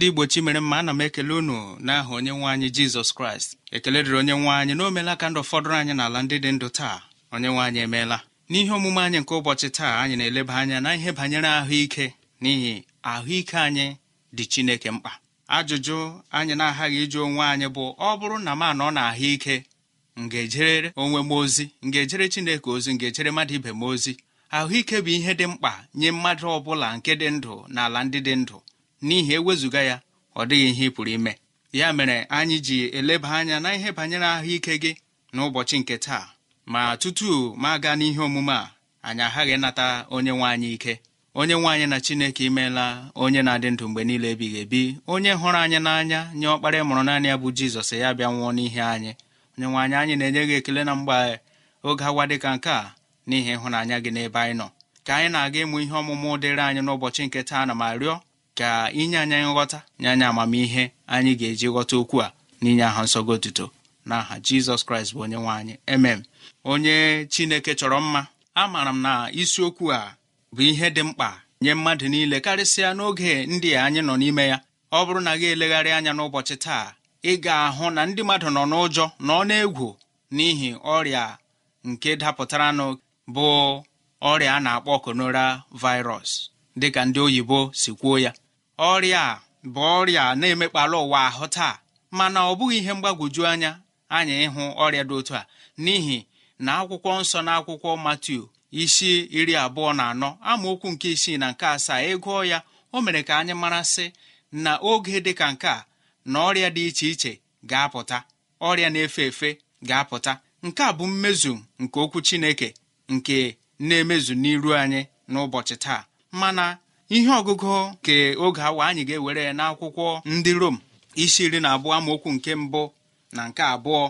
ndị igbo chi mere mma ana m ekele unu n'aha onye nwe anyị jizọs kraịst ekele dịrị onye nwe anyị na omela ka ndụ fọdụrụ anyị n'ala ndị dị ndụ taa onye nwe anyị emeela n'ihe omume anyị nke ụbọchị taa anyị na-eleba anya na ihe banyere ahụike n'ihi ahụike anyị dị chineke mkpa ajụjụ anyị na-aghaghị ịjụ onwe anyị bụ ọ bụrụ na m anọ na ahụike m ga-ejere onwe m ozi m ga-ejere chineke ozi m ga-ejere mmadụ ibe m ozi ahụike bụ ihe dị mkpa nye mmadụ ọ bụla nke dị ndụ na ala ndị dị ndụ n'ihi ewezụga ya ọ dịghị ihe ị pụrụ ime ya mere anyị ji eleba anya na ihe banyere ahụike gị n'ụbọchị nke taa ma tutu ma gaa n'ihe omume a anyị aghaghị nata onye nwe anyị ike onye nwe anyị na chineke imeela onye na-adị ndụ mgbe niile ebighị ebi onye hụrụ anyị n'anya nye ọkpara mụrụ naanị ya bụ jizọs ya bịa nwụọ n'ihe anyị onye nwe anyị anyị na-enye gị ekele na mgbe oge dị ka nke a n'ihi ịhụnanya gị n'ebe anyị nọ ka anyị na-aga ịmụ ihe ọmụmụ dịrị anyị n'ụbọchị nke taa na ma rịọ ka inye anyị nghọta nye anyị amamihe anyị ga-eji ghọta okwu a n'inye aha nsọgo otuto n'aha jizọs kraịst bụ onye nwe anyị emem onye chineke chọrọ mma amaara m na isiokwu a bụ ihe dị mkpa nye mmadụ niile karịsịa n'oge ndị anyị nọ n'ime ya ọ bụrụ na gị elegharị anya n'ụbọchị taa ị ga-ahụ na ndị mmadụ nọ n'ụjọ na ọ na-egwu n'ihi ọrịa nke dapụtaranụ bụ ọrịa a na-akpọ konora dị dịka ndị oyibo si kwuo ya ọrịa a bụ ọrịa na-emekpalụ ụwa ahụ taa mana ọ bụghị ihe mgbagwoju anya anyị ịhụ ọrịa dị otu a n'ihi na akwụkwọ nsọ na akwụkwọ matiu isi iri abụọ na anọ amaokwu nke isii na nke asaa ịgụọ ya o mere ka anyị marasị na oge dị ka nke a na ọrịa dị iche iche ga-apụta ọrịa na-efe efe ga-apụta nke a bụ mmezu nke okwu Chineke nke na-emezu n'iru anyị n'ụbọchị taa mana ihe ọgụgụ nke oge awa anyị ga-ewere n'akwụkwọ ndị rom isi iri na abụọ amaokwu nke mbụ na nke abụọ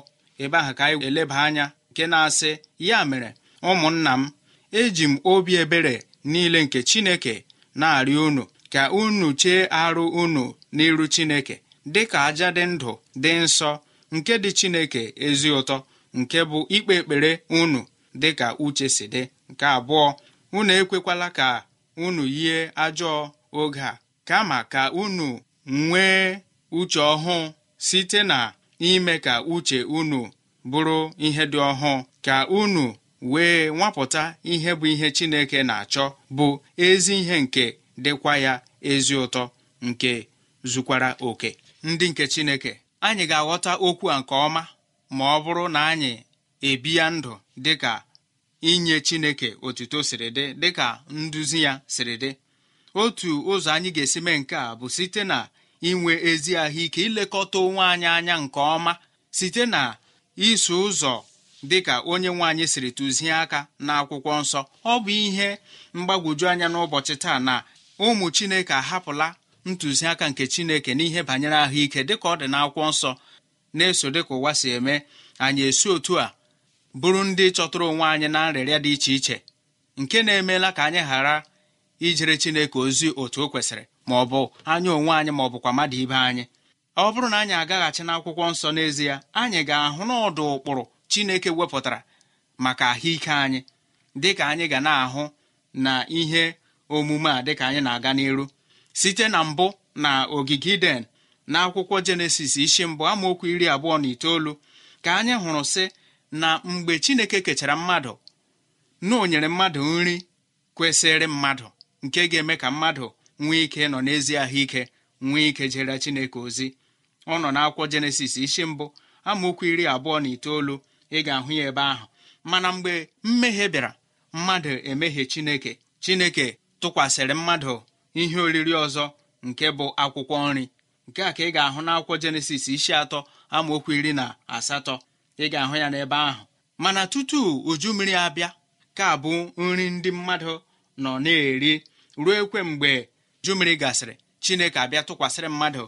ebe ahụ ka anyị eleba anya nke na-asị ya mere ụmụnna m eji m obi ebere niile nke chineke na-arịọ unu ka unu chee arụ unu n'iru chineke dị ka aja dị ndụ dị nsọ nke dị chineke ezi ụtọ nke bụ ikpe ekpere unu dị ka uche si dị nke abụọ unu ekwekwala ka unu yie ajọ oge a kama ka unu nwee uche ọhụụ site na ime ka uche unu bụrụ ihe dị ọhụụ ka unu wee nwapụta ihe bụ ihe Chineke na-achọ bụ ezi ihe nke dịkwa ya ezi ụtọ nke zukwara oke ndị nke Chineke anyị ga-aghọta okwu a nke ọma ma ọ bụrụ na anyị ya ndụ dịka inye chineke otuto siri dị dịka nduzi ya siri dị otu ụzọ anyị ga-esi mee nke a bụ site na inwe ezi ahụike ilekọta onwe anyị anya nke ọma site na iso ụzọ dịka onye nwe anyị siri tụzie aka n'akwụkwọ nsọ ọ bụ ihe mgbagwoju anya n'ụbọchị taa na ụmụ chineke ahapụla ntụziaka nke chineke n'ihe banyere ahụike dịka ọ dị n'akwụkwọ nsọ na-eso dịka ụwa si eme anyị esi otu a bụrụ ndị chọtụrụ onwe anyị na nrịrịa dị iche iche nke na-emeela ka anyị ghara ijere chineke ozi otu o kwesịrị ma ọ bụ anya onwe anyị ma ọ bụkwa mmadụ ibe anyị ọ bụrụ na anyị agaghachi n'akwụkwọ nsọ n'ezie anyị ga-ahụ n'ọdụ ụkpụrụ chineke wepụtara maka ahụike anyị dịka anyị ga na-ahụ na ihe omume a dịka anyị na-aga n'iru site na mbụ na ogige iden na akwụkwọ jenesis isi mbụ amaokwu iri abụọ na itoolu ka anyị hụrụ sị na mgbe chineke kechara mmadụ na o nyere mmadụ nri kwesịrị mmadụ nke ga-eme ka mmadụ nwee ike nọ n'ezi ahụike nwee ike jere chineke ozi ọ nọ n'akwụkwọ jenesis isi mbụ amaokwu iri abụọ na itoolu ị ga-ahụ ya ebe ahụ mana mgbe mmehie bịara mmadụ emehie chineke chineke tụkwasịrị mmadụ ihe oriri ọzọ nke bụ akwụkwọ nri nke a ka ị ga-ahụ n'akwụkwọ jenesis isi atọ amaokwu iri na asatọ ị ga-ahụ ya n'ebe ahụ mana tutu uju mmiri abịa ka bụ nri ndị mmadụ nọ na-eri ruo ekwe mgbe uju mmiri gasịrị chineke abịa tụkwasịrị mmadụ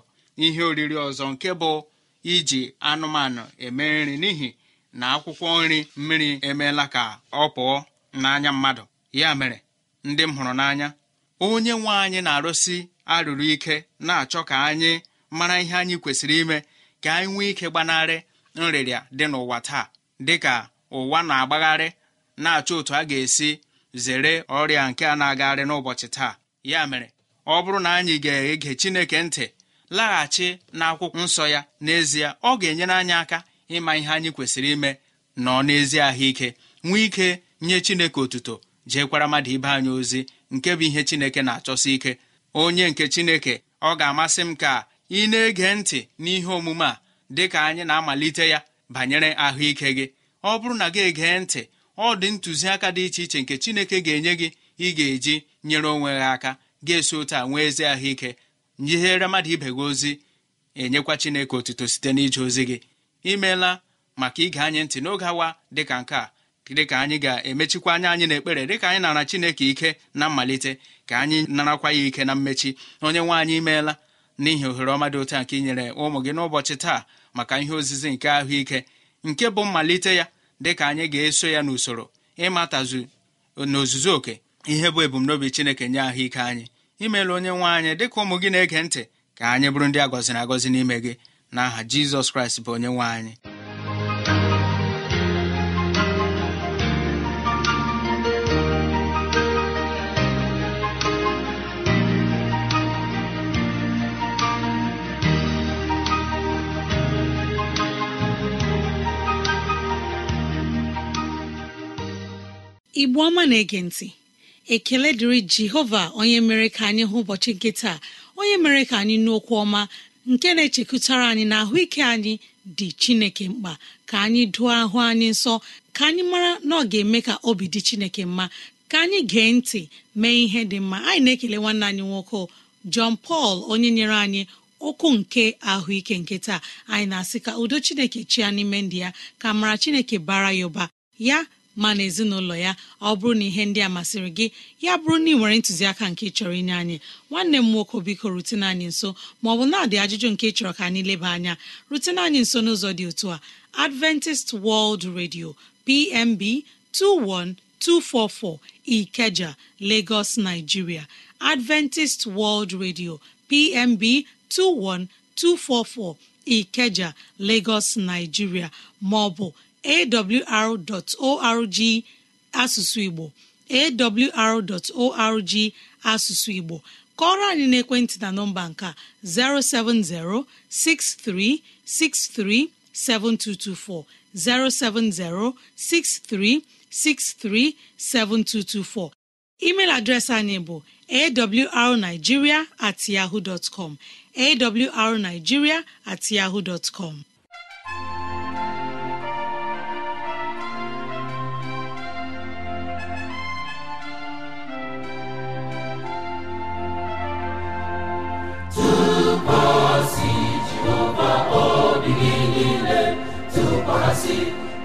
ihe oriri ọzọ nke bụ iji anụmanụ eme nri n'ihi na akwụkwọ nri mmiri emeela ka ọ pụọ n'anya mmadụ ya mere ndị m hụrụ n'anya onye nwe anyị na-arụsi arụrụ ike na-achọ ka anyị mara ihe anyị kwesịrị ime ka anyị nwee ike gbanarị nrịrịa dị n'ụwa taa dịka ụwa na-agbagharị na-achọ otu a ga-esi zere ọrịa nke a na-agagharị n'ụbọchị taa ya mere ọ bụrụ na anyị ga-ege Chineke ntị laghachi n'akwụkwọ nsọ ya n'ezie ọ ga-enyere anyị aka ịma ihe anyị kwesịrị ime nọ n'ezi ahụike nwee ike nye Chineke otuto jeekwara mmadụ ibe anyị ozi nke bụ ihe Chineke na-achọsi ike onye nke Chineke ọ ga-amasị m ka ị na-ege ntị n'ihe omume a dị ka anyị na-amalite ya banyere ahụike gị ọ bụrụ na gị egee ntị ọ dị ntụziaka dị iche iche nke chineke ga-enye gị ị ga-eji nyere onwe gị aka ga-esi otu a nwee ezi ahụike nyihere mmadụ ibe gị ozi enyekwa chineke otuto site n'ije ozi gị imeela maka ige anyị ntị n'oge awa dịka nke a dịka anyị ga-emechikwa anya anyị n'ekpere dịka anyị nara chineke ike na mmalite ka anyị narakwa ya ike na mmechi onye nwe anyị imeela n'ihi ohere ọma dị nke inyere ụmụ gị n'ụbọchị taa maka ihe ozizi nke ahụike nke bụ mmalite ya dịka anyị ga-eso ya n'usoro ịmatazu n'ozuzu oke ihe bụ ebumnobi chineke nye ahụike anyị imeela onye nwe anyị dịka ụmụ gị na-ege ntị ka anyị bụrụ ndị agọziri na agọzi n'ime gị na aha jizọs kraịst bụ onye nwe anyị igbo ọma na-ege ntị ekele dịrị jehova onye mere ka anyị hụ ụbọchị nke taa onye mere ka anyị Okwu ọma nke na-echekụtara anyị na ahụike anyị dị chineke mkpa ka anyị dụọ ahụ anyị nsọ ka anyị mara na ọ ga-eme ka obi dị chineke mma ka anyị gee ntị mee ihe dị mma anyị na-ekele nwanne anyị nwoke John pal onye nyere anyị okwu nke ahụike nke taa anyị na-asị ka udo chineke chia n'ime ndị ya ka mara chineke bara ya ụba ya ma na ezinụlọ ya ọ bụrụ na ihe ndị a masịrị gị ya bụrụ na ị nwere ntụziaka nke chọrọ inye anyị nwanne m nwoke biko rutene anyị nso maọbụ na-adị ajụjụ nke chọrọ ka anyị leba anya rutene anyị nso n'ụzọ dị otu a adventist world radio pmb 21244 ikeja lagos nigeria adventist world radio pmb 21244 ikeja lagos nigeria maọbụ awr.org asụsụ igbo awr.org asụsụ igbo kọrọ anyị n'ekwentị na nọmba nke 07063637224 07063637224 email adreesị anyị bụ awrnigeria at yahoo com awrnigeria at yahoo com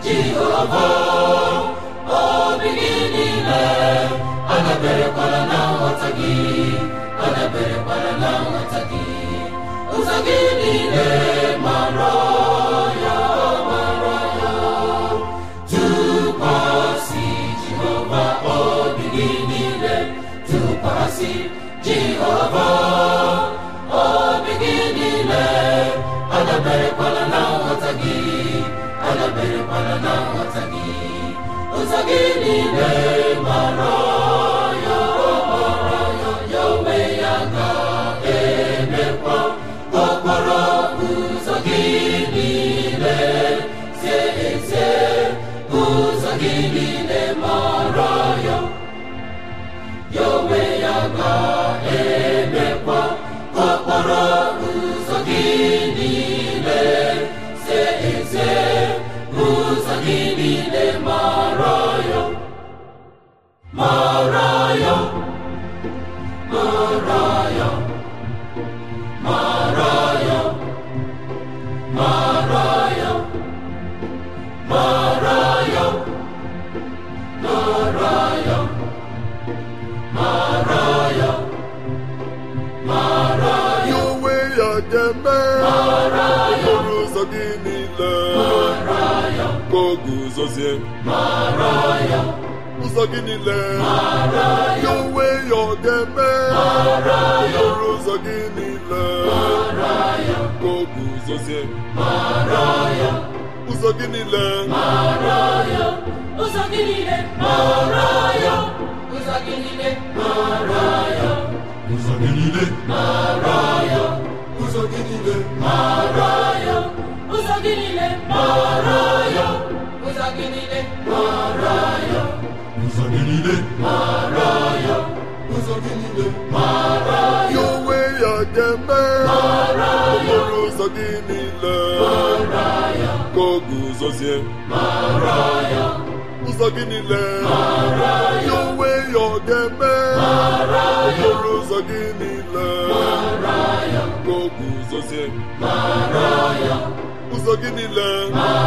jehova obi gị niile adaberekwala na nghọta gị adaberekwala na nghọta gị ụzọ gị niile mara ya mara ya tụkwasị jehova obi gị niile tụkwasị jehova niile ụzọ gị niile ya onwe ya ọ ga-eme okporo ụzọ gị niile guzozie ụzọ gị niile ụzọ gị niile ụzọ gị niile ụzọ gị niile ụzọ gị niile ụzọ gị niile ụzọ gị mara ya ụzọ gị mara ya ụzọ gị mara ya onwe ya ga-eme mara ya ụzọ gị niile mara ya ka ụzọ zie. mara ya ụzọ gị niile mara ya ya gị niile ọ ụzọ gị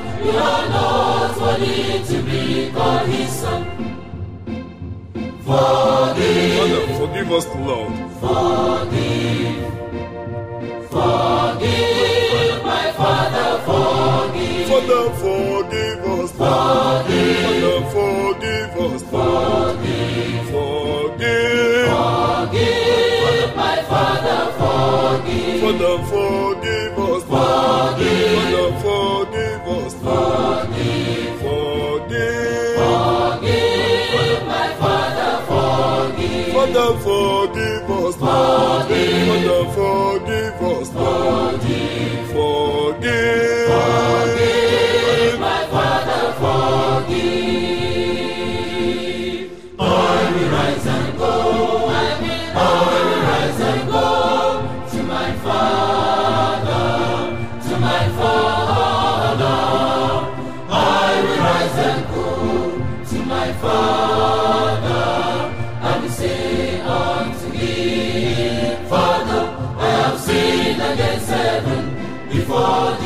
We are not worthy Forgive. forgive Forgive. my Father, forgive. forgive Forgive. forgive Forgive. Forgive. my Father, forgive. forgive us, Lord. Lord.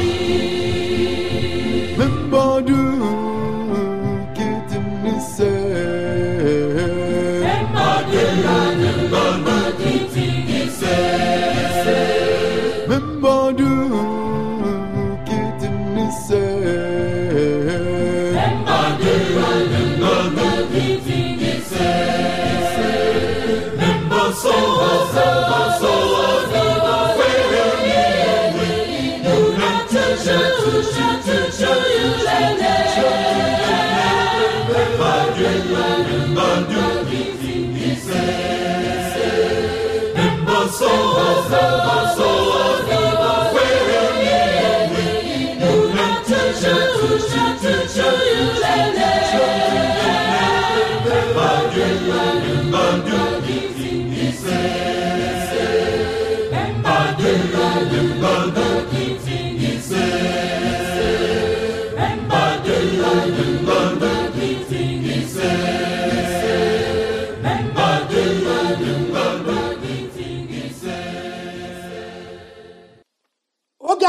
oge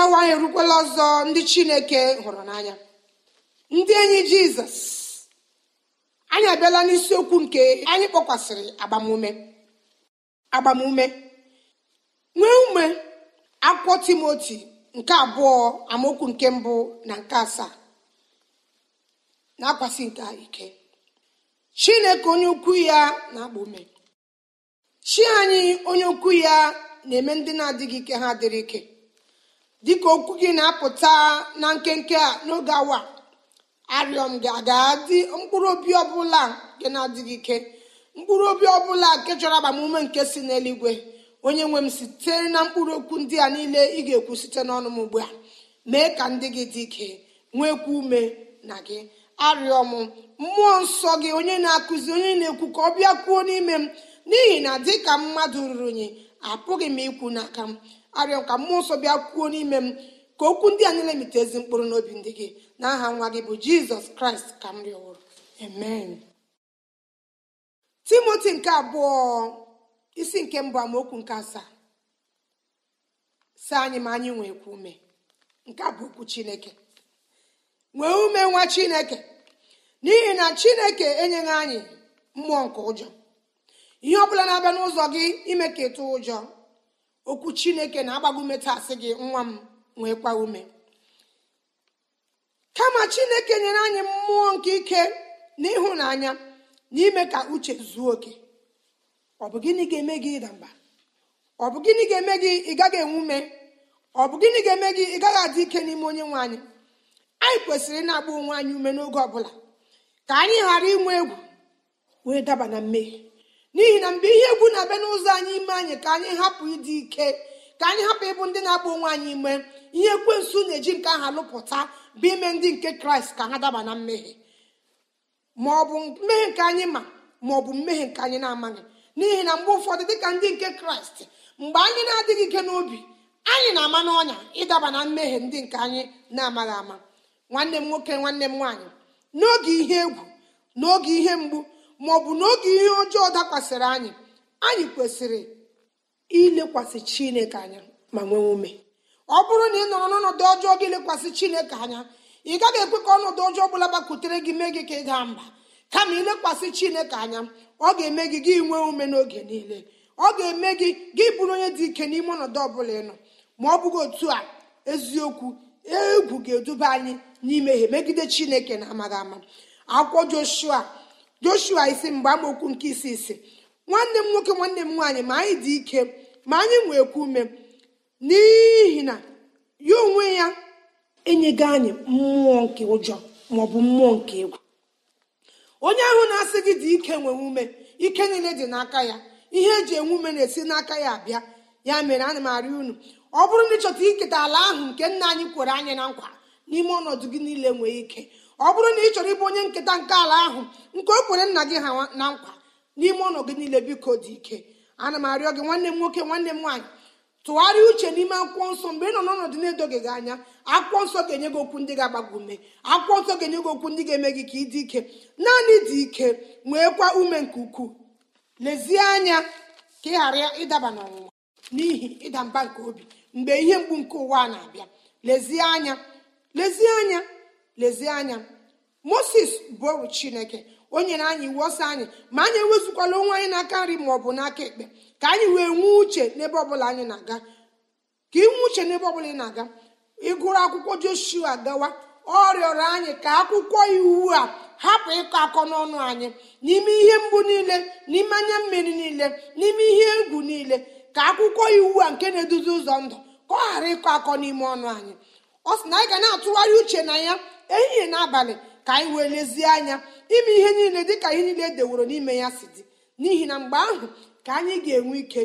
awa anyị erukwala ọzọ ndị chineke hụrụ n'anya ndị enyi jizọs anyị abịala n'isiokwu nke anyị kpọkwasịrị agbamume agbamume nwee ume akwụkwọ timoti nke abụọ amaokwu nke mbụ na nke asaa na-akwasị nke ike chineke onye ukwu ya na-akpa ume chi anyị onye ukwu ya na-eme ndị na-adịghị ike ha dịrị ike dịka okwu gị na-apụta na nkenke a n'oge awa arịọ gị aga adị mkpụrụ obi ọbụla nke na-adịghị ike mkpụrụ obi ọbụla nke chọrọ agbamume nke si n'eluigwe onye nwe m sitere na mkpụrụ okwu ndị a niile ị ga-ekwu site n'ọnụ m ugbu a mee ka ndị gị dị ike nwekwa ume na gị arịọ m mmụọ nsọ gị onye na-akụzi onye na-ekwu ka ọ bịa kwuo n'ime m n'ihi na dị ka mmadụ ruru unyi apụghị m ikwu n'aka m arịọ ka mmụọ nsọ bịa kwuo n'ime m ka okwu ndị a niile mite ezi mkpụrụ n'obi ndị gị na aha nwa gị bụ jizọs kraịst ka m rịọwụrụ amen timoti nke abụọ isi nke mbụ amaokwu nke asaa sị anyị ma anyị nwekwa ume nke a bụ okwu chineke nwee ume nwa chineke n'ihi na chineke enyeghị anyị mmụọ nke ụjọ ihe ọ bụla na-abịa n'ụzọ gị ime ka ịtụ ụjọ okwu chineke na-agbago metasị gị nwa m nwekwa ume kama chineke nyere anyị mmụọ nke ike na ịhụnanya ka uche zuo oke ọ bụ gịnị ga-eme gị ịda mba ọ bụ gịnị ga-eme gị ị gaghị enwe ume ọ bụ gịnị ga-eme gị ị gaghị adị ike n'ime onye nwe anyị anyị kwesịrị ịna-agba onwe anyị ume n'oge ọbụla ka anyị ghara inwe egwu wee daba na mmehie n'ihi na mgbe ihe egwu na-abịa n'ụzọ anyị ime anyị ka anyị hapụ ịdị ike ka anyị hapụ ịbụ ndị na-agba onwe anyị ime ihe ekwensu na-eji nke aha lụpụta bụ ime ndị nke kraịst ka ha daba na mmehie ma ọ bụ mmehie nke anyị ma ma mmehie nke anyị na-amaghị n'ihi na mgbe ụfọdụ dịka ndị nke kraịst mgbe anyị na-adịghị ike n'obi anyị na-ama n'ọnya ịdaba na mmehie ndị nke anyị na-amaghị ama nwanne m nwoke nwanne m nwaanyị n'oge ihe egwu n'oge ihe mgbu ma ọ bụ n'oge ihe ọjọọ dakwasịrị anyị anyị kwesịrị ilekwasị chineke anya ma nwee ume ọ bụrụ na ị nọrọ n'ọnọdụ ọjọọ gị lekwasị chineke anya ị gaghị ekwe ka ọnọdụ ọjọọ ọ bụla gbakwutere gị mee gị ka ị daa mba kama ilekwasị chineke anya ọ ga-eme gị gị nwee ume n'oge niile ọ ga-eme gị gị bụrụ onye dị ike n'ime ọnọdụ ọbụla ịnọ ma ọ bụghị otu a eziokwu egwu ga-eduba anyị ihe megide chineke na amaghị ama akwụkwọ joshua joshua isi mgbe amaokwu nke isi isi nwanne m nwoke nwanne m nwaanyị ma anyị dị ike ma anyị nwekwa ume n'ihi na ya onwe ya enyego anyị mmụọ nke ụjọ maọbụ mmụọ nke egwu onye ahụ na-asị gị dị ike nwe ume ike niile dị n'aka ya ihe eji enwe ume na-esi n'aka ya abịa ya mere ana m arịọ unu ọ bụrụ na ịchọta iketa ala ahụ nke nna anyị kwere anyị na nkwa n'ime ọnọdụ gị niile nwee ike ọ bụrụ na ị chọrọ ịbụ onye nketa nke ala ahụ nke o kwere nna gị ha na nkwa n'ime ọnọdụ gị niile biko dị ike ana m arịọ gị nwanne m nwoke nwanne m nwaanyị tụgharịa uche n'ime akwụkwọ nsọ mgbe ị nọ n'ọnọdụ na-edoghị gị anya akwụkwọ nsọ ga-enye gị okwu ndị ga-agbago ume akwụkwọ nsọ ga-enye gị okwu ndị ga-eme gị ka ị dị ike naanị dị ike kwa ume nke ukwuu lezie anya ka ị ghara ịdaba n'ọnwụnwa n'ihi ịda mba nke obi mgbe ihe mgbu nke ụwa na-abịa lezie anya lezie anya lezie anya moses bụ chineke o nyere anyị iwu ọsọ anyị ma anyị enwezụkwala onwe anyị n'aka nri ma ọ bụ n'aka ekpe ka anyị wee nwee uche n'ebe ọbụla anyị na-aga ka ị nwee uche n'ebe ọbụla ị na-aga ịgụrụ akwụkwọ joshua gawa ọ rịọrọ anyị ka akwụkwọ iwu a hapụ ịkọ akọ n'ọnụ anyị n'ime ihe mgbu niile n'ime anya mmiri niile n'ime ihe egwu niile ka akwụkwọ iwu a nke na-eduzi ụzọ ndụ ka ọ ghara ịkọ akọ n'ime ọnụ anyị ọ sị na anyị ga na-atụgharị uche na ya ehihie n'abalị ka anyị wee lezie anya ime ihe niile dịka ihe niile edeworo n'ime ya si dị n'ihi na mgbe ahụ ka anyị ga-enwe ike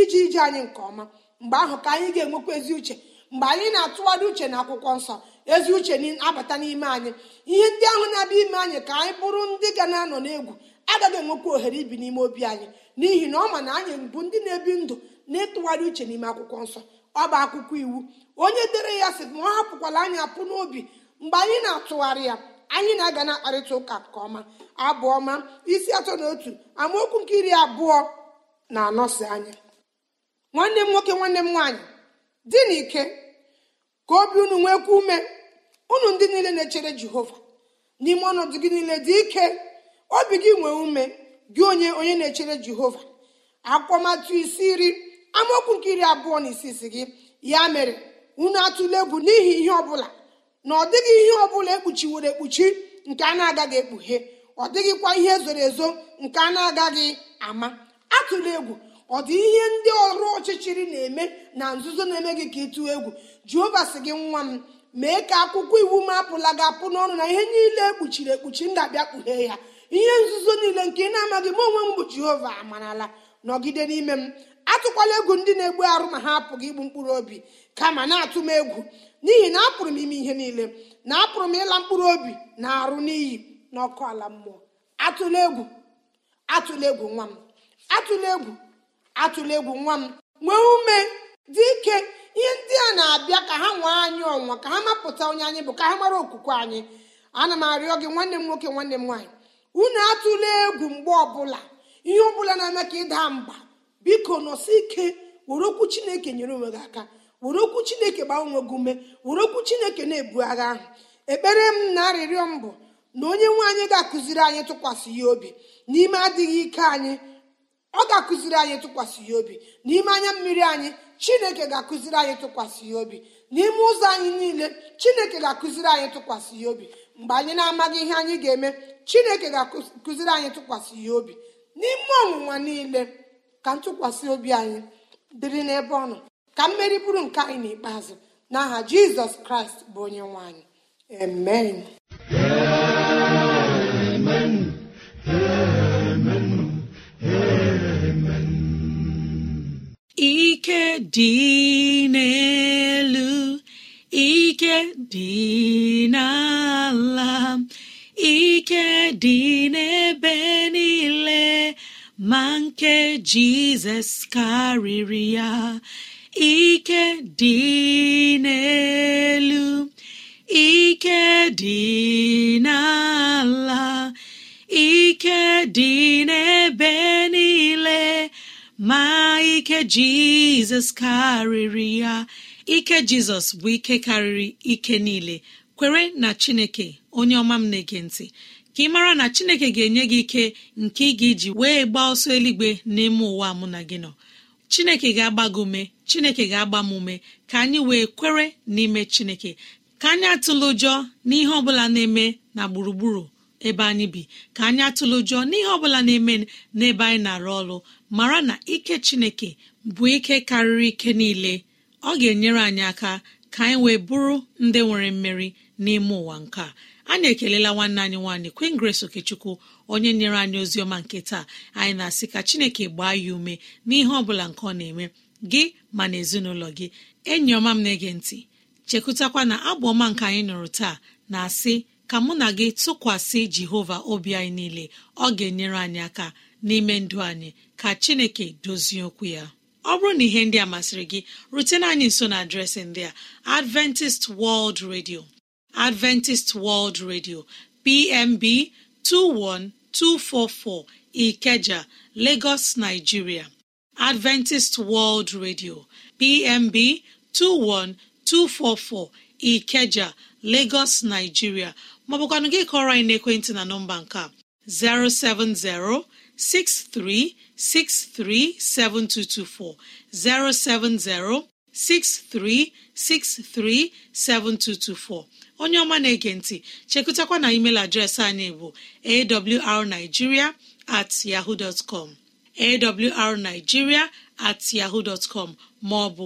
iji ije anyị nke ọma mgbe ahụ ka anyị ga-enwekwa ezi uche mgbe anyị na-atụgharị uche na akwụkwọ nsọ ezi uche na-abata n'ime anyị ihe ndị ahụ na-abịa ime anyị ka anyị bụrụ ndị ga na-anọ n'egwu agaghị enwekwa ohere ibi n'ime obi anyị n'ihi na ọ ma na anyị bụ ndị na-ebi ndụ na-etụgharị uche n'ime akwụkwọ nsọ ọ bụ akwụkwọ iwu onye dere ya sị ma ọ hapụkwala anyị apụ n'obi mgbe anyị na-atụgharị ya anyị na-aga na-akparịta ụka nke ọma abụọma isi atọ na otu amaokwu nke iri abụọ na-anọsi anya nwanne m nwoke nwanne m nwaanyị di na ike ka obi unu nwekwa ume unu ndị niile na-echere jehova n'ime ọnọdụ gị niile dị ike obi gị nwee ume gị onye onye na-echere jehova akwụkwọmatụ isi iri amaokwu nke iri abụọ na isi isi gị ya mere unu atụle egwu n'ihi ihe ọbụla na ọ dịghị ihe ọbụla ekpuchiwere ekpuchi nke a na-agaghị ekpughe ọ dịghịkwa ihe e zoro ezo nke a na-agaghị ama atụla egwu ọ dị ihe ndị ọrụ ọchịchịrị na-eme na nzuzo na-eme gị ka ị tụọ egwu jehova sị gị nwa m mee ka akwụkwọ iwu m apụla gị apụ n'ọnụ na ihe niile ekpuchiri ekpuchi ndabia kpughee ya ihe nzuzo niile nke ị na-amaghị m onwe m bụ jehova amarala nọgide n'ime m atụkwala egwu ndị na-egbu arụ ma ha apụghị igbu mkpụrụ obi kama na-atụ m egwu n'ihi na apụrụ m ime ihe niile na apụrụ m ịla mkpụrụ obi na arụ n'iyi ọkụ ala mmụọ atụla egwu atụla egwu nwa m atụla egwu atụla egwu nwa m nwee ume dị ike ihe ndị a na-abịa ka ha nwee anyị ọnwa ka ha mapụta onye anyị bụ ka ha mara okwukwe anyị ana m arịọ gị nwanne m nwoke nwanne m nwaanyị unu atụla egwu mgbe ọbụla ihe ọbụla na-eme ka ịda mba biko nọsi ike were okwu chineke nyere onwe gị aka were okwu chineke gbaa onwe gị ume were okwu chineke na-ebu agha ahụ ekpere m na arịrịọ m bụ na onye nwe anyị ga-akụziri anyị tụkwasị ya obi n'ime adịghị ike anyị ọ ga-akụziri anyị tụkwasị ya obi n'ime anya mmiri anyị chineke ga-akụziri anyị tụkwasị ya obi n'ime ụzọ anyị niile chineke ga-akụziri anyị tụkwasị ya obi mgbe anyị na-amaghị ihe anyị ga-eme chineke ga-akụziri anyị tụkwasị ya obi n'ime ọnwụnwa niile ka ntụkwasị obi anyị dịrị n'ebe ọ nọ ka mmeri bụrụ nke anyị n'ikpeazụ n'aha jizọs kraịst bụ onye nwe anyị amen ike dị n'elu ike dị n'ala ike dị n'ebe niile ma nke jizọs karịrị ya ike dị n'elu ike dị n'ala ike dị n'ebe niile ma ike jizọs karịrị ya ike jizọs bụ ike karịrị ike niile kwere na chineke onye ọma m na-ege ntị ka ị mara na chineke ga-enye gị ike nke ị ga-eji wee gba ọsọ eluigwe n'ime ụwa mụ na gị nọ chineke ga-agba gị ume chineke ga-agba m ume ka anyị wee kwere n'ime chineke ka anyị atụla ụjọ n'ihe ọ bụla na-eme na gburugburu ebe anyị bi ka anyị atụlụ jụọ n'ihe ọ bụla na-eme n'ebe anyị na-arụ ọrụ mara na ike chineke bụ ike karịrị ike niile ọ ga-enyere anyị aka ka anyị wee bụrụ ndị nwere mmeri n'ime ụwa nke a anyị ekelela nwanne anyị nwaanyị Queen Grace Okechukwu onye nyere anyị ozi ọma nke taa anyị na-asị ka Chineke gbaa ya ume n'ihe ọ bụla nke ọ na-eme gị ma na ezinụlọ gị enyi ọma m na-ege ntị chekwutakwa na abụ ọma nke anyị nụrụ taa na-asị ka mụ na gị tụkwasị jehova obi anyị niile ọ ga-enyere anyị aka n'ime ndụ anyị ka chineke dozie okwu ya ọ bụrụ na ihe ndị a masịrị gị rutena anyị nso na adreesị ndị a adventist world radio adventist world radio pmb 21244 ikeja lagos nigeria adventist world radio pmb 21244 ikeja lagos nigeria maọbụkwanụ gị kọrọ anyị n'ekwentị na nọmba nke a 07063637224 7224. onye ọma na-ege ntị chekụtakwa na email adreesị anyị bụ awrnigeria at yahoo com awrnigeria at yahoo com maọbụ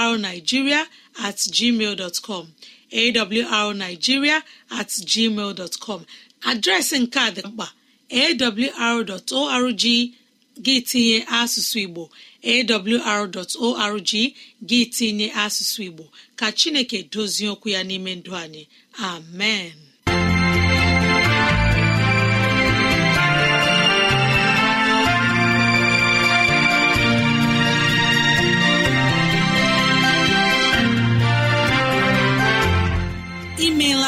awrnigeria at gmail dot com awrnigiria at gmail com adreesị nke a dị mkpa awr.org gị tinye asụsụ igbo awr.org gị tinye asụsụ igbo ka chineke dozie okwu ya n'ime ndụ anyị amen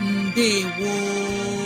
Ndewo